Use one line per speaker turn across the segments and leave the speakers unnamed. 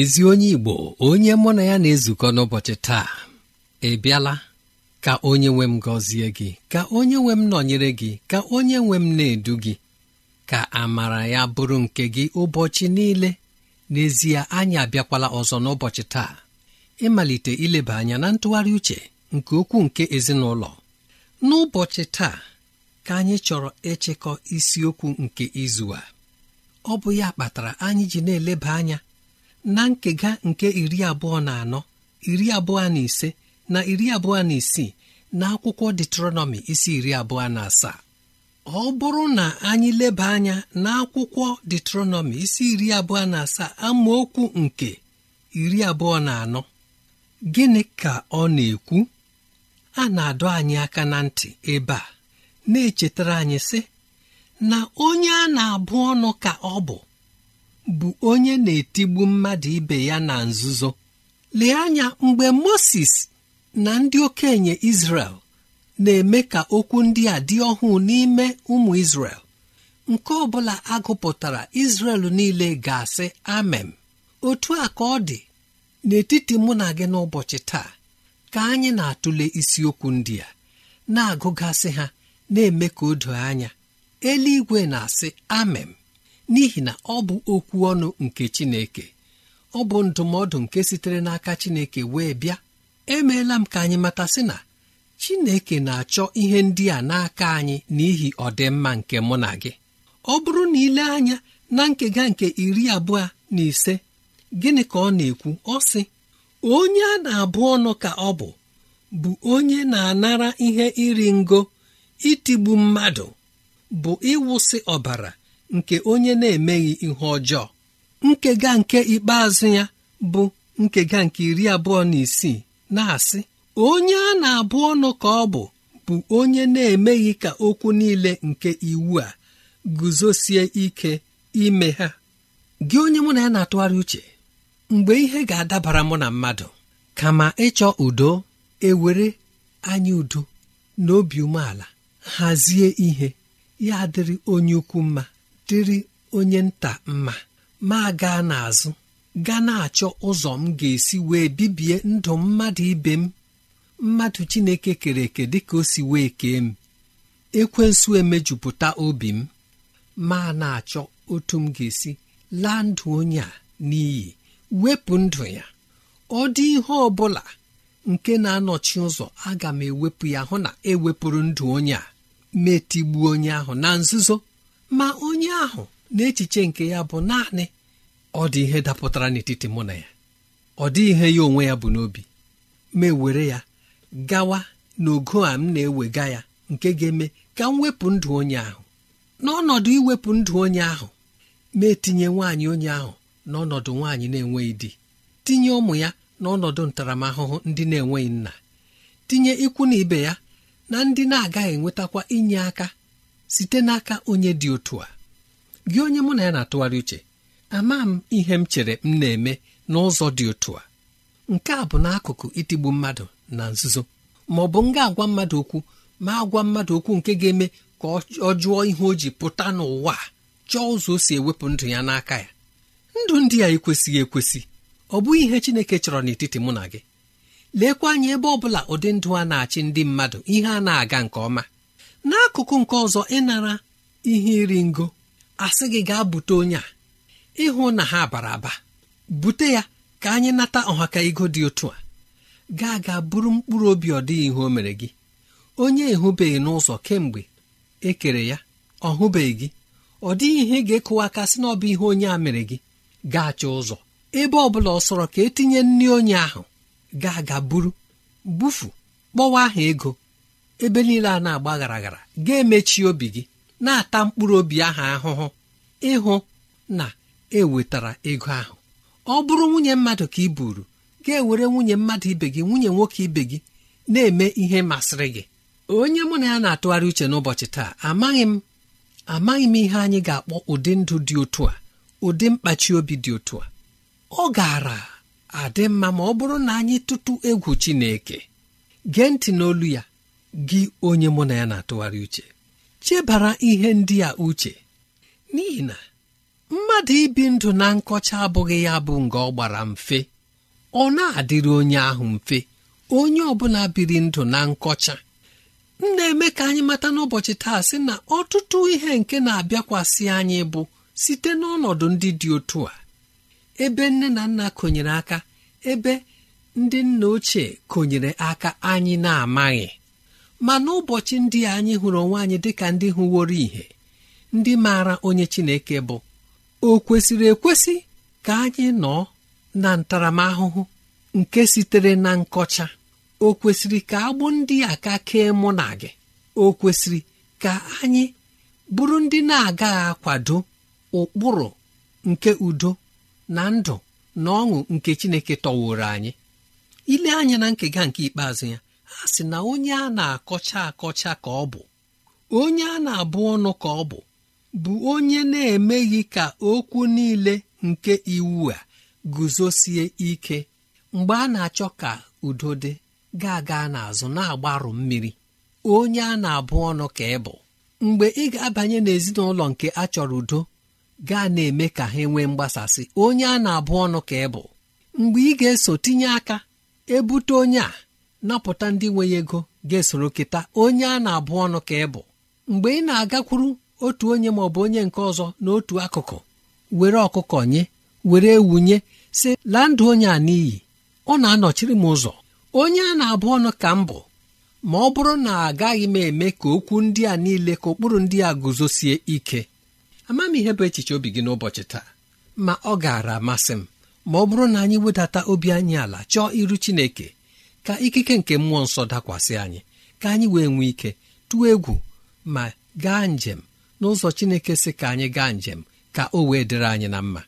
ezi onye igbo onye mụ na ya na-ezukọ n'ụbọchị taa ị bịala ka onye nwe m gọzie gị ka onye nwe m nọnyere gị ka onye nwe m na-edu gị ka amara ya bụrụ nke gị ụbọchị niile n'ezie anyị abịakwala ọzọ n'ụbọchị taa ịmalite ileba anya na ntụgharị uche nke okwu nke ezinụlọ n'ụbọchị taa ka anyị chọrọ ịchịkọ isiokwu nke izu a ọ bụ ya kpatara anyị ji na-eleba anya na nkega nke iri abụọ na anọ iri abụọ na ise na iri abụọ na isii na akwụkwọ detronọmi isi iri abụọ na asaa ọ bụrụ na anyị leba anya na akwụkwọ detronọmi isi iri abụọ na asaa amaokwu nke iri abụọ na anọ gịnị ka ọ na-ekwu a na-adọ anyị aka na ntị ebe a na-echetara anyị sị na onye a na-abụ ọnụ ka ọ bụ bụ onye na-etigbu mmadụ ibe ya na nzuzo lee anya mgbe moses na ndị okenye Izrel na-eme ka okwu ndị a dị ọhụụ n'ime ụmụ Izrel nke ọbụla bụla agụpụtara Izrel niile ga-asị amem otu a ka ọ dị n'etiti mụ na gị n'ụbọchị taa ka anyị na-atụle isiokwu ndị a na-agụgasị ha na-eme ka o doo anya eluigwe na-asị amem n'ihi na ọ bụ okwu ọnụ nke Chineke ọ bụ ndụmọdụ nke sitere n'aka Chineke wee bịa emeela m ka anyị matasị na Chineke na-achọ ihe ndị a n'aka anyị n'ihi ọdịmma nke mụ na gị ọ bụrụ na ile anya na nkega nke iri abụọ na ise gịnị ka ọ na-ekwu ọ sị onye a na-abụ ọnụ ka ọ bụ bụ onye na-anara ihe iri ngo itigbu mmadụ bụ ịwụsị ọbara nke onye na-emeghị ihe ọjọọ nkega nke ikpeazụ ya bụ nkega nke iri abụọ na isii na-asị onye a na-abụ ọnụ ka ọ bụ bụ onye na-emeghị ka okwu niile nke iwu a guzosie ike ime ha gị onye mụ na ya na-atụgharị uche mgbe ihe ga-adabara mụ na mmadụ kama ịchọ udo ewere anya udo na obi umeala hazie ihe ya adịrị onye ukwu mma dịrị onye nta mma ma gaa n'azụ gaa na-achọ ụzọ m ga-esi wee bibie ndụ mmadụ ibe m mmadụ Chineke kere eke dịka o si wee kee m ekwensu emejupụta obi m ma na-achọ otu m ga-esi laa ndụ onye a n'iyi wepụ ndụ ya ọ dị ihe ọ bụla nke na-anọchi ụzọ aga m ewepụ ya hụ na ewepụrụ ndụ onye a metigbuo onye ahụ na nzuzo ma onye ahụ na echiche nke ya bụ naanị ọ dị ihe dapụtara n'etiti mụ na ya ọ dịghị ihe ya onwe ya bụ n'obi ma ewere ya gawa n'ogo a m na-ewega ya nke ga-eme ka m wepụ ndụ onye ahụ n'ọnọdụ iwepụ ndụ onye ahụ mee etinye nwaanyị onye ahụ n'ọnọdụ nwaanyị na-enweghị di tinye ụmụ ya n'ọnọdụ ntaramahụhụ ndị na-enweghị nna tinye ikwu na ibe ya na ndị na-agaghị enwetakwa inye aka site n'aka onye dị otu a gị onye mụ na ya na-atụgharị uche ama m ihe m chere m na-eme n'ụzọ dị otu a nke a bụ n'akụkụ itigbu mmadụ na nzuzo ma ọ bụ m ga-agwa mmadụ okwu ma agwa mmadụ okwu nke ga-eme ka ọ jụọ ihe o ji pụta n'ụwa chọọ ụzọ o si ewepụ ndụ ya n'aka ya ndụ ndị a ekwesịghị ekwesị ọ bụghị ihe Chineke chọrọ n'etiti mụ na gị lekwa anya ebe ọ bụla ụdị ndụ a na-achị ndị mmadụ ihe a na-aga nke ọma n'akụkụ nke ọzọ ịnara ihe iri ngo asị gị gaa bute onye a ịhụ na ha bara aba bute ya ka anyị nata ọhaka ego dị otu a gaa gaa bụrụ mkpụrụ obi ọ dịghị ihe o mere gị onye ehụbeghị n'ụzọ kemgbe e kere ya ọ hụbeghị gị ọ dịghị ihe ga-ekụwa aka sị na ọ bụ ihe onye a mere gị gaacha ụzọ ebe ọ bụla ọ sọrọ ka etinye nri onye ahụ gaa gaa buru bufu kpọwa aha ego ebe niile a na-agba garaghara ga-emechi obi gị na-ata mkpụrụ obi ahụ ahụhụ ịhụ na ewetara ego ahụ ọ bụrụ nwunye mmadụ ka ị buru ga-ewere nwunye mmadụ ibe gị nwunye nwoke ibe gị na-eme ihe masịrị gị onye mụ na ya na-atụgharị uche n'ụbọchị taa amaghị m amaghị m ihe anyị ga-akpọ ụdị ndụ dị otu a ụdị mkpachi obi dị otu a ọ gaara adị mma ma ọ bụrụ na anyị tụtụ egwu Chineke gee ntị n'olu ya gị onye mụ na ya na-atụgharị uche chebara ihe ndị a uche n'ihi na mmadụ ibi ndụ na nkọcha abụghị ya bụ nga ọ gbara mfe ọ na-adịrị onye ahụ mfe onye ọbụla biri ndụ na nkọcha m na-eme ka anyị mata n'ụbọchị taa sị na ọtụtụ ihe nke na-abịakwasị anyị bụ site n'ọnọdụ ndị dị otu a ebe nne na nna konyere aka ebe ndị nna ochie konyere aka anyị na-amaghị ma n'ụbọchị ndị a anyị hụrụ onwe anyị dịka ndị hụworo ihe ndị maara onye Chineke bụ o kwesịrị ekwesị ka anyị nọ na ntaramahụhụ nke sitere na nkọcha o kwesịrị ka agbụ ndị a ka kee mụ na gị o kwesịrị ka anyị bụrụ ndị na-agaghị akwado ụkpụrụ nke udo na ndụ na ọṅụ nke Chineke tọworo anyị ile anya na nkega nke ikpeazụ ya ha sị na onye a na-akọcha akọcha ka ọ bụ onye a na-abụ ọnụ ka ọ bụ bụ onye na-emeghị ka okwu niile nke iwu a guzosie ike mgbe a na-achọ ka udo dị ga-aga n'azụ na-agbarụ mmiri onye a na-abụ ọnụ ka ị bụ mgbe ị ga-abanye n'ezinụlọ nke a chọrọ udo gaa na-eme ka ha nwee mgbasasị onye a na-abụ ọnụ ka ị bụ mgbe ị ga-eso tinye aka ebute onye a napụta ndị nwe ego ga-esoro kịta onye a na-abụ ọnụ ka ị bụ mgbe ị na-agakwuru otu onye ma ọ bụ onye nke ọzọ n'otu akụkụ were ọkụkọ nye were wunye si laa ndụ onye a n'iyi ọ na-anọchiri m ụzọ onye a na-abụ ọnụ ka m bụ ma ọ bụrụ na agaghị m eme ka okwu ndị a niile ka ụkpụrụ ndị a guzosie ike ama m ihe bụ echiche obi gị n'ụbọchị taa ma ọ gaara amasị m ma ọ bụrụ na anyị wedata obi anyị ala chọọ iru Chineke ka ikike nke mmụọ nsọ dakwasị anyị ka anyị wee nwee ike tụọ egwu ma gaa njem n'ụzọ Chineke si ka anyị gaa njem ka o wee dịrị anyị na mma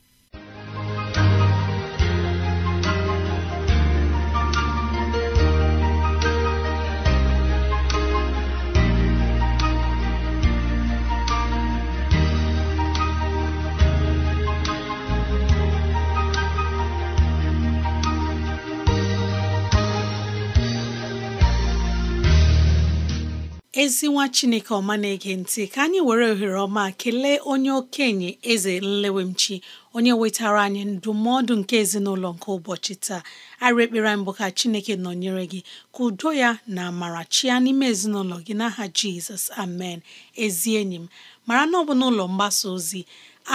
ezi nwa chineke ọma na-ege ntị ka anyị were ohere ọma kelee onye okenye eze nlewemchi onye wetara anyị ndụmọdụ nke ezinụlọ nke ụbọchị taa arị ekpere mbụ ka chineke nọnyere gị ka udo ya na amara chia n'ime ezinụlọ gị n'aha jizọs amen ezi enyi m mara na ọ bụ n'ụlọ mgbasa ozi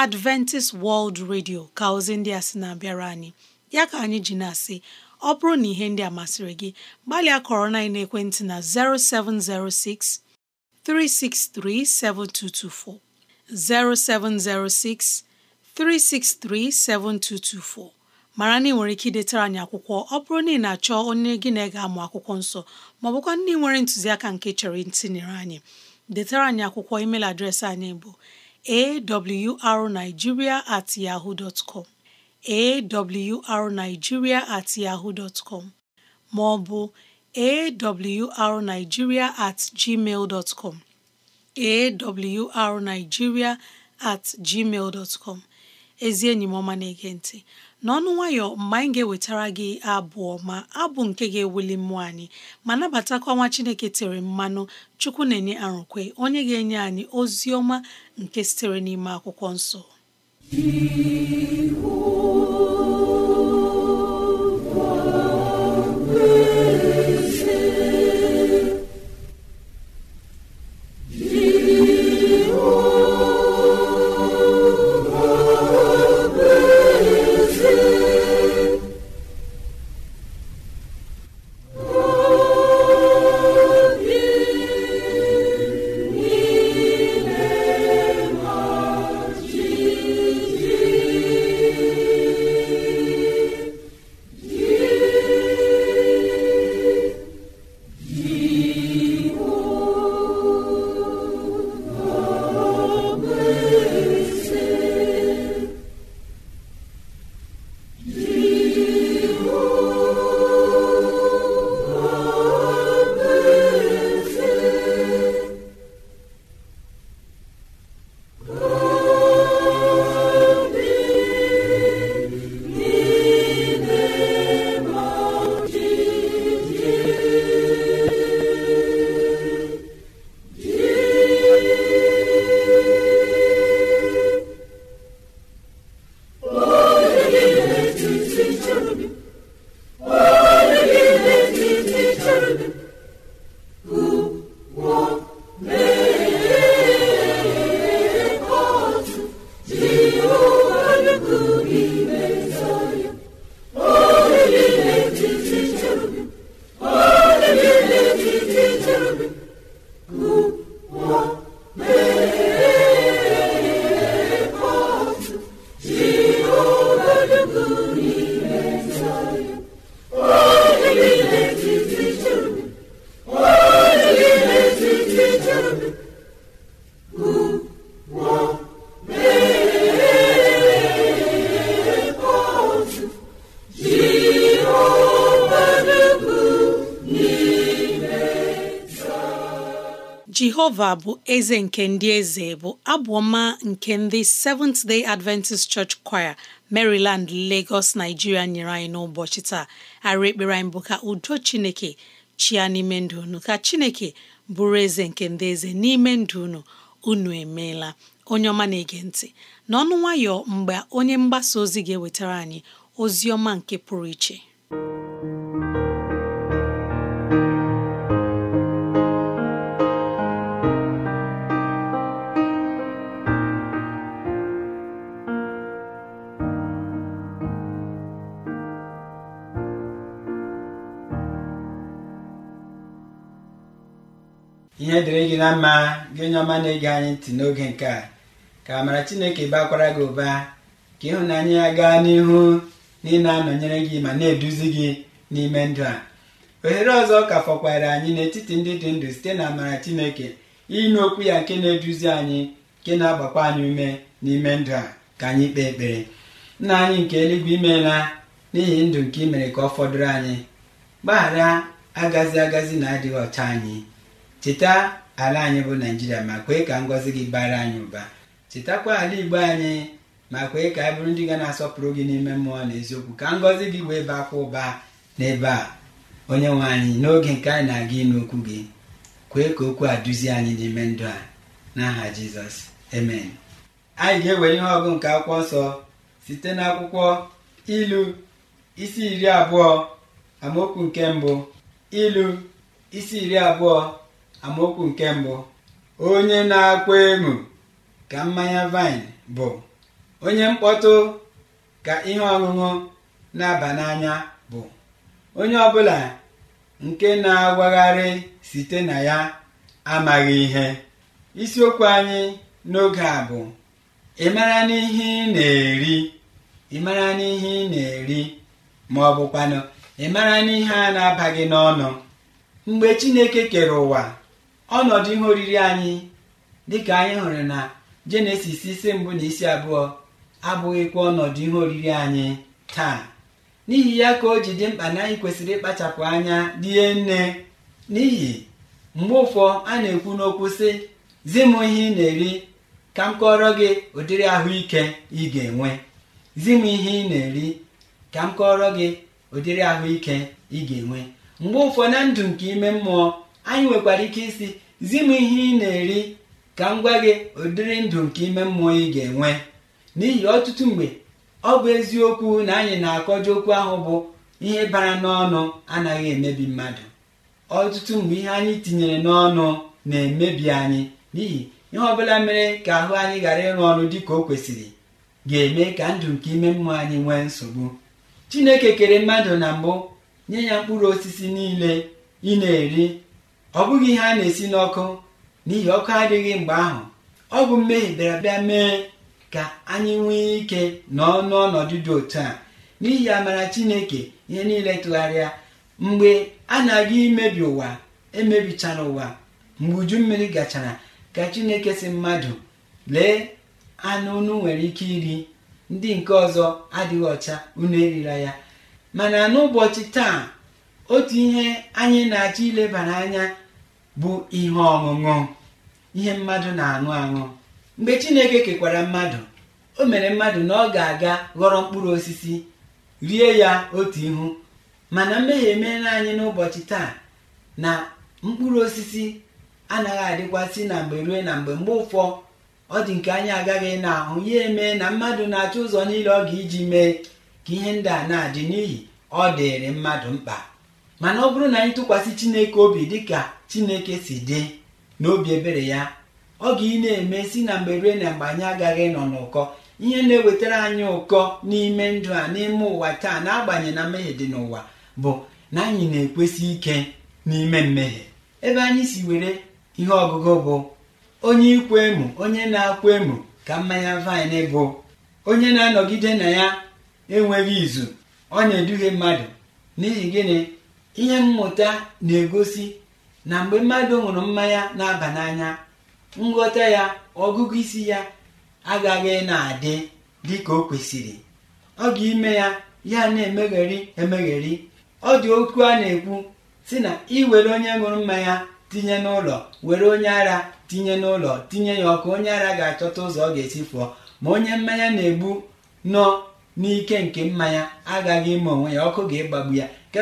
adventist world radio ka ozi ndị a sị na-abịara anyị ya ka anyị ji na-asị ọ bụrụ na ihe ndị a masịrị gị gbalịa kọrọ na ekwentị na 0706 363 7224 0706 363 7224 mara na ị nwere ike idetara anyị akwụkwọ ọ bụrụ na ị na-achọ onye gị na ga-amụ akwụkwọ nsọ maọbụkwa ndị nwere ntụziaka nke chọrọ ntinyere anyị detara anyị akwụkwọ email adreesị anyị bụ awrnigeria at yahoo dot awrnigeria at yahoo dot com ma ọ bụ awrnigeria at gmail dot com at gmail dot ezi enyi m na-ege ntị n'ọnụ nwayọ mgbe anyị ga-ewetara gị abụọ ma abụ nke ga-ewuli mmụọ anyị ma nabatakwa nwa Chineke tere mmanụ Chukwu na-enye arụkwe onye ga-enye anyị ozi ọma nke sitere n'ime akwụkwọ nsọ
He who
Jehova bụ eze nke ndị eze bụ abụọma nke ndị Seventh Day Adventist Church Choir Maryland Lagos Nigeria nyere anyị n'ụbọchị taa arị ekpere anyị bụ ka udo Chineke chia n'ime ndụ unu ka Chineke bụrụ eze nke ndị eze n'ime ndụ unu unu emeela onye ọma na-ege ntị n'ọnụ nwayọ mgbe onye mgbasa ozi ga-ewetara anyị ozi ọma nke pụrụ iche
ihe dịrị gị na mma gị onye ọma na-ege anyị ntị n'oge nke a ka amara chineke bakwara gị ụba ka ịhụnanya ya gaa n'ihu na ị na-anọnyere gị ma na-eduzi gị n'ime ndụ a ohere ọzọ ka fọkwara anyị n'etiti ndị dị ndụ site na amara chineke ịnụ okwu ya nke na-eduzi anyị nke na-agbakwa anyị ume n'ime ndụ a ka anyị kpee ekpere nna anyị nke eluigwe imeela n'ihi ndụ nke ị mere ka ọ fọdụrụ anyị gbaghara agazi agazi na adịghị ọcha anyị cheta ala anyị bụ naijiria ma kwee ka ngọzi gị bara anyị ụba chetakwa ala igbo anyị ma kwee ka anyị bụrụ ndị ga na-asọpụrụ gị n'ime mmụọ na eziokwu ka ngọzi gị wee kwa ụba n'ebe a onye nwe anyị n'oge nke anyị na-aga ịnụ okwu gị kwee ka okwu a duzie anyị n'ime ndụ a n'aha jizọs amen anyị ga-ewere ihe ọgụ nke akwụkwọ nsọ site n'akwụkwọ ilu isi iri abụọ amaokwu nke mbụ ilu isi iri abụọ amaokwu nke mbụ onye na-akwa emu ka mmanya vaịn bụ onye mkpọtụ ka ihe ọṅụṅụ na-aba n'anya bụ onye ọbụla nke na-agwagharị site na ya amaghị ihe isiokwu anyị n'oge a bụ ị mara n'ihe ị na-eri ị mara n'ihe ị na-eri ma ọ bụkwanụ ị mara n'ihe a na-abaghị n'ọnụ mgbe Chineke kere ụwa ọnọdụ ihe oriri anyị dịka anyị hụrụ na jenesis isi mbụ na isi abụọ abụghịkwa ọnọdụ ihe oriri anyị taa n'ihi ya ka o ji dị mkpa na anyị kwesịrị ịkpachapụ anya rie nne n'ihi mgbe ụfọ a na-ekwu n'okwu sị zi m ihe ị na-eri ka m kọrọ gị ụdịrị ahụike ị ga-enwe zi m ihe ị na-eri ka m gị ụdịrị ahụike ị ga-enwe mgbe ụfọ na ndụ nke ime mmụọ anyị nwekwara ike isi zi m ihe ị na-eri ka m gwa gị ụdịrị ndụ nke ime mmụọ ị ga-enwe n'ihi ọtụtụ mgbe ọ bụ eziokwu na anyị na-akọji okwu ahụ bụ ihe bara n'ọnụ anaghị emebi mmadụ ọtụtụ mgbe ihe anyị tinyere n'ọnụ na-emebi anyị n'ihi ihe ọbụla mere ka ahụ anyị ghara ịrụ ọrụ dị ka o kwesịrị ga-eme ka ndụ nke ime mmụọ anyị nwee nsogbu chineke kere mmadụ na mbụ nye ya mkpụrụ osisi niile ị na-eri ọ bụghị ihe a na-esi n'ọkụ n'ihi ọkụ adịghị mgbe ahụ ọ bụ mmehie bịara bịa mee ka anyị nwee ike nọ n'ọnọdụ dị otu a n'ihi amara chineke ihe niile tụgharịa mgbe a na-aga imebi ụwa emebichara ụwa mgbe uju mmiri gachara ka chineke si mmadụ lee anụ unu nwere ike iri ndị nke ọzọ adịghị ọcha unu erila ya mana n'ụbọchị taa otu ihe anyị na-achọ ilebara anya bụ ihe ọṅụṅụ ihe mmadụ na-aṅụ aṅụ mgbe Chineke kekwara mmadụ o mere mmadụ na ọ ga-aga ghọrọ mkpụrụ osisi rie ya otu ihu mana mmehie emeela anyị n'ụbọchị taa na mkpụrụ osisi anaghị adịkwasị na mgbe rue na mgbe mgbe ụfọ ọ dị nke anyị agaghị na-ahụ ya eme na mmadụ na-achọ ụzọ niile ọ ga iji mee ka ihe ndị a na-adị n'ihi ọ dịịrị mmadụ mkpa mana ọ bụrụ na anyị tụkwasị chineke obi dịka chineke si dị n'obi ebere ya ọ ga ị na-eme si na mgbe rue na mgbe anyị agaghị nọ n'ụkọ ihe na-ewetara anyị ụkọ n'ime ndụ a n'ime ụwa taa na-agbanye na mmehie dị n'ụwa bụ na anyị na-ekwesị ike n'ime mmehie ebe anyị si were ihe ọgụgụ bụ onye ikwu emu onye na-akwa emu ka mmanya vaịn bụ onye na-anọgide na ya enweghị izu ọ na-eduhie mmadụ n'ihi gịnị ihe mmụta na-egosi na mgbe mmadụ ṅụrụ mmanya na-aba n'anya nghọta ya ọgụgụ isi ya agaghị na-adị dị ka o kwesịrị ọ ga-ime ya ya na-emegheri emegheri ọ dị okwu a na-ekwu si na iwere onye ṅụrụ mmanya tinye n'ụlọ were onye ara tinye n'ụlọ tinye ya ọkụ onye ara ga-achọta ụzọ ọ ga-esi fụọ ma onye mmanya na-egbu nọ n'ike nke mmanya agaghị ime onwe ya ọkụ ga-egbagbu ya nke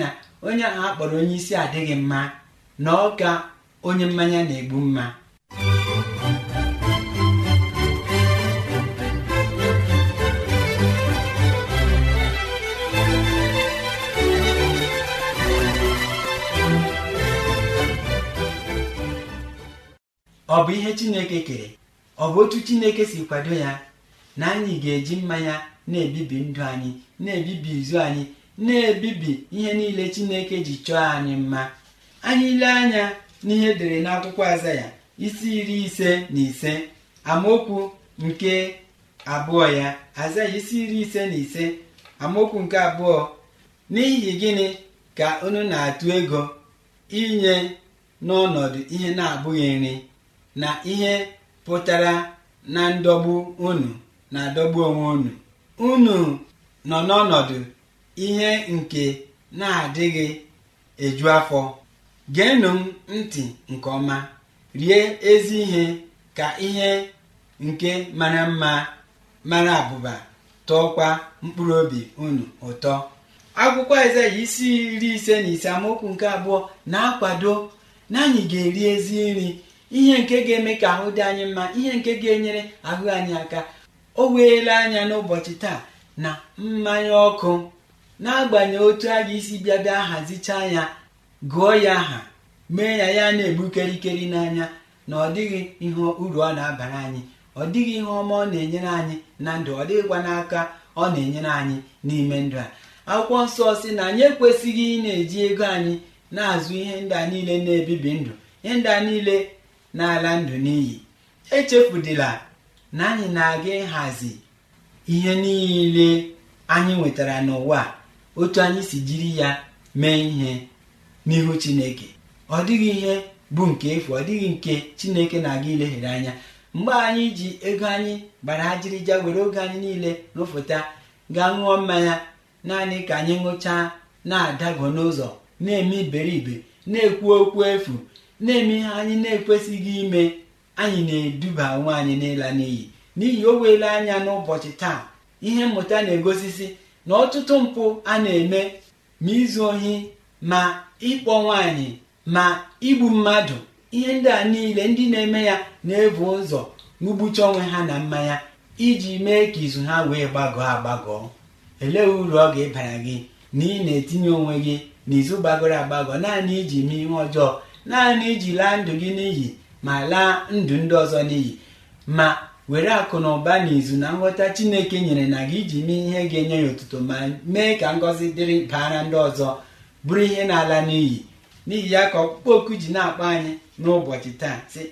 na onye ahụ akpọrọ onye isi adịghị mma na ọka onye mmanya na-egbu mma ọ bụ ihe Chineke kere ọ bụ otu Chineke si kwado ya na anyị ga-eji mmanya na-ebibi ndụ anyị na-ebibi izu anyị na-ebibi ihe niile chineke ji chọọ anyị mma anyị ile anya n'ihe edere n'akwụkwọ azaya isi iri ise na ise amaokwu nke abụọ ya azaya isi iri ise na ise amaokwu nke abụọ n'ihi gịnị ka unu na-atụ ego inye n'ọnọdụ ihe na-abụghị nri na ihe pụtara na ndọgbu unu na-adọgbu onwe unu unu nọ n'ọnọdụ ihe nke na-adịghị eju afọ geenụ m ntị nke ọma rie ezi ihe ka ihe nke mara mma mara abụba tọọkwa mkpụrụ obi unu ụtọ akwụkwọ Aịzaya isi iri ise na ise amaokwu nke abụọ na-akwado na anyị ga-eri ezi nri ihe nke ga-eme ka ahụ dị anyị mma ihe nke ga-enyere ahụ anyị aka o weela anya n'ụbọchị taa na mmanya ọkụ n'agbanyeghị otu a ga isi bịa bịa hazichaa ya gụọ ya aha mee ya ya na-egbu kerikeri n'anya na ọ dịghị ihe uru ọ na-abara anyị ọ dịghị ihe ọma ọ na-enyere anyị na ndụ ọ dịghịkwa n'aka ọ na-enyere anyị n'ime ndụ a akwụkwọ nsọ si na anyị ekwesịghị ị na-eji ego anyị na-azụ ihe ndị a niile na-ebibi ndụ ihe ndị a niile na-ala ndụ n'iyi echefudila na anyị na-aga ịhazi ihe niile anyị nwetara n'ụwa otu anyị si jiri ya mee ihe n'ihu chineke ọ dịghị ihe bụ nke efu ọ dịghị nke chineke na-aga ilehere anya mgbe anyị ji ego anyị gbara ajịrịja were oge anyị niile rụfụta gaa ṅụọ mmanya naanị ka anyị ṅụchaa na-adago n'ụzọ na-eme iberibe na-ekwu okwu efu na-eme ihe anyị na-ekwesịghị ime anyị na-eduba onwe anyị n'ịla n'iyi n'ihi o weela anya n'ụbọchị taa ihe mmụta na-egosisi na ọtụtụ mpụ a na-eme ma izu ohi ma ịkpọ nwaanyị ma igbu mmadụ ihe ndị a niile ndị na-eme ya na-ebu ụzọ ugbucha onwe ha na mmanya iji mee ka izu ha wee gbagọọ agbagọọ elee uru ọ ga-ebara gị na ị na-etinye onwe gị n'izu gbagọrọ agbagọ naanị iji mee ihe ọjọọ naanị iji laa ndụ gị n'iyi ma laa ndụ ndị ọzọ n'iyi ma were akụ na ụba na izu na nghọta chineke nyere na gị iji mee ihe ga-enye ya ụtụtụ ma mee ka ngọzi dịrị baara ndị ọzọ bụrụ ihe na-ala n'iyi n'ihi ya ka ọkpụkpọ oku ji na-akpọ anyị n'ụbọchị taa sị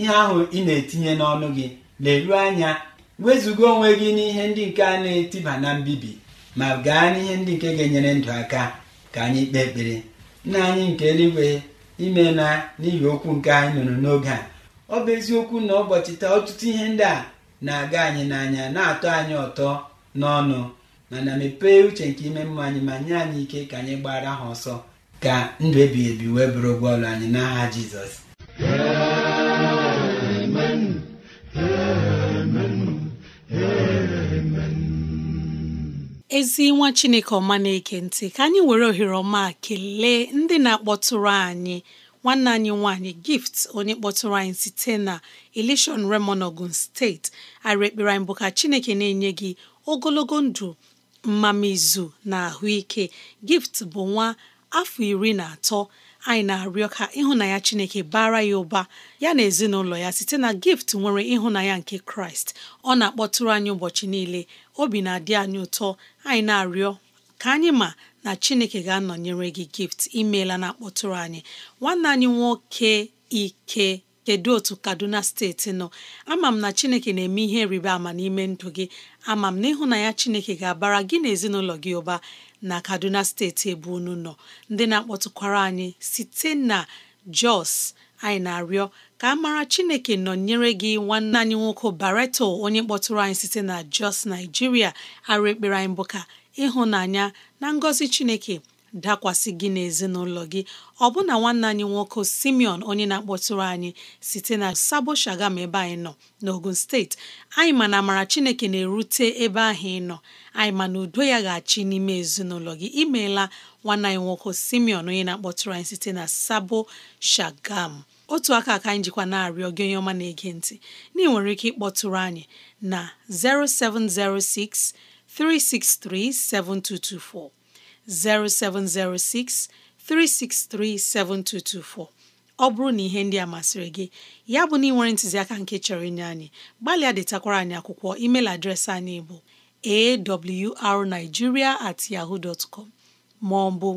ihe ahụ ị na-etinye n'ọnụ gị leruo anya wezụga onwe gị n'ihe ndị nke a na-etiba na mbibi ma gaa n'ihe ndị nke ga-enyere ndụ aka ka anyị kpee ekpere nna anyị nke eluigwe ime na n'ihi okwu nke anyị nụrụ n'oge a ọ bụ eziokwu na ụbọchị taa ọtụtụ ihe ndị a na-aga anyị n'anya na-atọ anyị ụtọ n'ọnụ mana mepee uche nke ime mmụọ anyị ma nye anyị ike ka anyị gbara ha ọsọ ka ndụ ebighị ebi wee bụrụ ụgwọ anyị n'agha jizọs
ezi nwa chineke ọma na-eke ntị ka anyị were ohere ọma kelee ndị na-akpọtụrụ anyị nwanne anyị nwanyị gift onye kpọtụrụ anyị site na elishon remon steeti arị ekpere bụ ka chineke na-enye gị ogologo ndụ izu na ahụike gift bụ nwa afọ iri na atọ anyị na-arịọ ka ịhụnanya chineke bara ya ụba ya na ezinụlọ ya site na gift nwere ịhụnanya nke kraịst ọ na-akpọtụrụ anyị ụbọchị niile obi na-adị anyị ụtọ anyị na-arịọ ka anyị ma na chineke ga-anọnyere gị gift imeela na akpọtụrụ anyị nwanne anyị nwoke ike kedu otu kaduna steeti nọ ama m na chineke na-eme ihe rịba ama n'ime ndụ gị ama m na ịhụnanya chineke ga-abara gị na ezinụlọ gị ụba na kaduna steeti ebe unu nọ ndị na-akpọtụkwara anyị site na jos anyị na-arịọ ka a mara chineke nọnyere gị nwanne anyị nwoke bareto onye kpọtụrụ anyị site na jos naijiria arụ ekpere anyị bụ ka ịhụnanya na ngọzi chineke dakwasị gị n'ezinụlọ gị ọbụna nwanne anyị nwoke Simeon onye na-akpọtụrụ anyị site na Sabo Shagam ebe anyị nọ n'Ogun steeti anyị ma na amara Chineke na-erute ebe ahụ ị nọ anyị ma na udo ya ga-achị n'ime ezinụlọ gị imeela nwanne anyị nwoke Simeon onye na-akpọtụrụ anyị site na Sabo Shagam otu aka ka anyị jikwa na-arịọ gị onye ọma na-ege ntị na ị nwere ike ịkpọtụrụ anyị na 0706 363 7224 0706 363 7224 ọ bụrụ na ihe ndị a masịrị gị ya bụ na ntuziaka ntụziaka nke chọrọ inye anyị gbalịa adịtakwara anyị akwụkwọ email adreesị anyị bụ awrnigeria at yahoo ma ọ bụ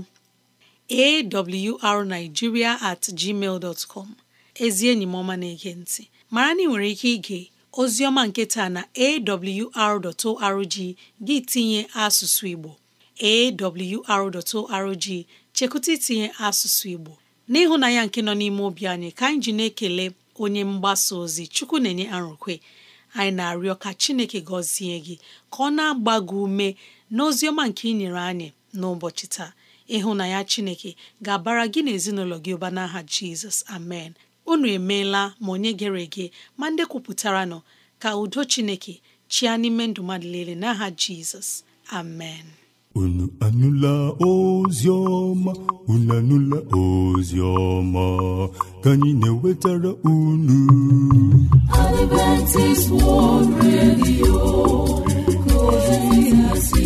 at gmail ezi enyi m ọma na-ege ntị mara na ị nwere ike ige Oziọma nke taa na awr.org gị tinye asụsụ Igbo awr.org chekụta itinye asụsụ Igbo n'ịhụnanya nke nọ n'ime obi anyị ka anyị ji na-ekele onye mgbasa ozi Chukwu na-enye arụkwe anyị na-arịọ ka Chineke gọzie gị ka ọ na-agba gị ume na ọma nke ị nyere anyị n'ụbọchị taa ịhụnanya Chineke ga-abara gị na ezinụlọ gị ụba n'aha Jizọs amen unu emeela ma onye gere ege ma ndị kwupụtara nọ ka udo chineke chia n'ime ndụ mmadụ niile n'aha jizọs amen
unu anụla ozi ọma unu anụla ozi ka anyị na-ewetara unu
Adventist World Radio
ka ozi si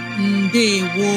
ndewo